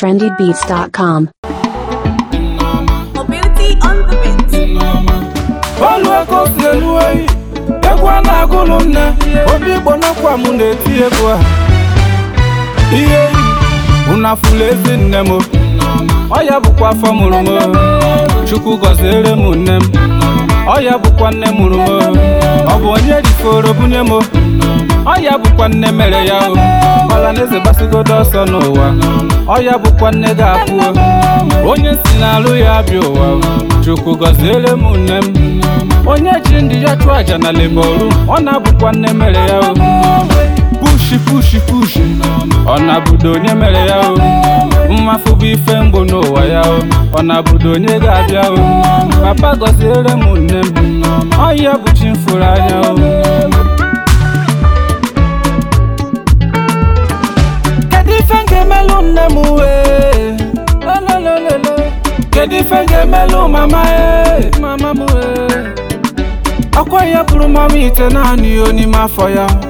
trendybeats.com. Mobility on the beat. Olu si elu oyi, egwu a na-agụlụ nne, obi igbo n'ọkwa m na-eti egwu a. Ihe yi, unu afụla ezi nne m, ọ bụkwa afọ mụrụ m, Chukwu gọziere m nne m. ọ ya bụkwa nne mụrụ m ọ bụ onye rikoro bunye m ọ ya bụkwa nne mere ya o ọla na eze gbasigodo ọsọ n'ụwa ọ ya bụkwa nne ga-apụ onye si n'alụ ya abịa ụwa chukwu gọziere m nne m onye ji ndị ya chụọ aja na ọ na-abụkwa nne mere ya o pushi pushi pushi na onye mere ya o mma bụ ife mbụ n'ụwa ya o ọ na-abụdo onye ga-abịa o papa gọziere m nne m ọya bụ chi m anya o kedu ife ga-emelụ mama e ọkwa ya bụrụ mama ite naanị ya n'ime afọ ya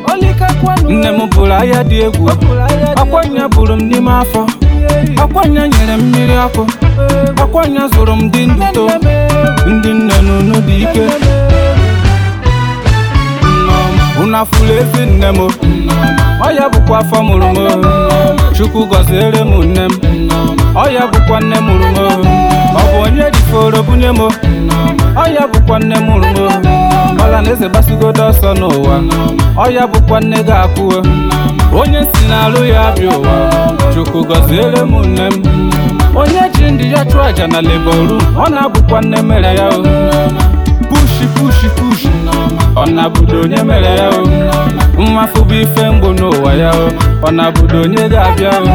nne m bụrụ ahịa dị egwu ọkwanya bụrụ m n'ime afọ ọkwanya nyere m mmiri ọkụ ọkwanya zụrụ m dị nduto ndị nne n'unu dị ike unu afụlụ ezi nne m Ọya bụkwa afọ mụrụ m chukwu gọziere m nne m Ọya bụkwa nne mụrụ m ọ bụ onye jiforo bunye m ọ bụkwa nne mụrụ m ọhaneze gbasigodo ọsọ n'ụwa ọ ya bụkwa nne gị akwụwe onye si n'alụ ya abịa ụwa chukwu gọziere m nne m onye ji ndị ya chụọ aja na leboru ọ na-abụkwa nne mere ya o pushi pushi pushi ọ na-abụdo onye mere ya o mmafụ bụ ife mgbu n'ụwa ya o ọ na-abụdo onye ga-abịa o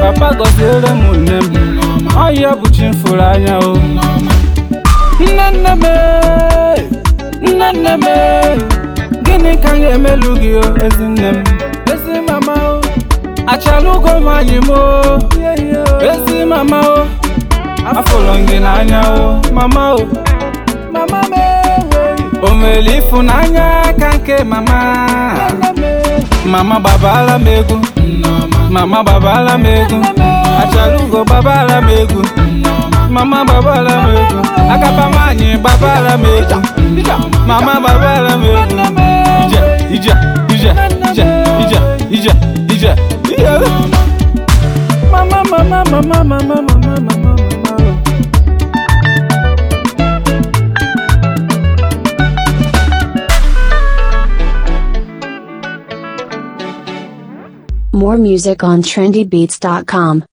papa gọziere m nne m ọ ya bụ chi m anya o nne nne nne nne gịnị ka ga-emelu gị o ezi nne ezi mama o achala ụgwọ nwanyị m ezi mama o afọrọ gị n'anya o mama o mama m e, o ịfụnanya aka nke mama mama gbabala m egwu mama gbabala m egwu ụgwọ gbabala m egwu mama m m egwu mama babala m ije ije ije ije ije ije ije mama mama mama mama mama mama More music on trendybeats.com.